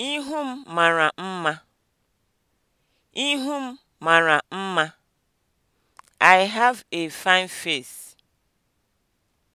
Ihu m mara mma. Ihu m mara mma. I have a fine face.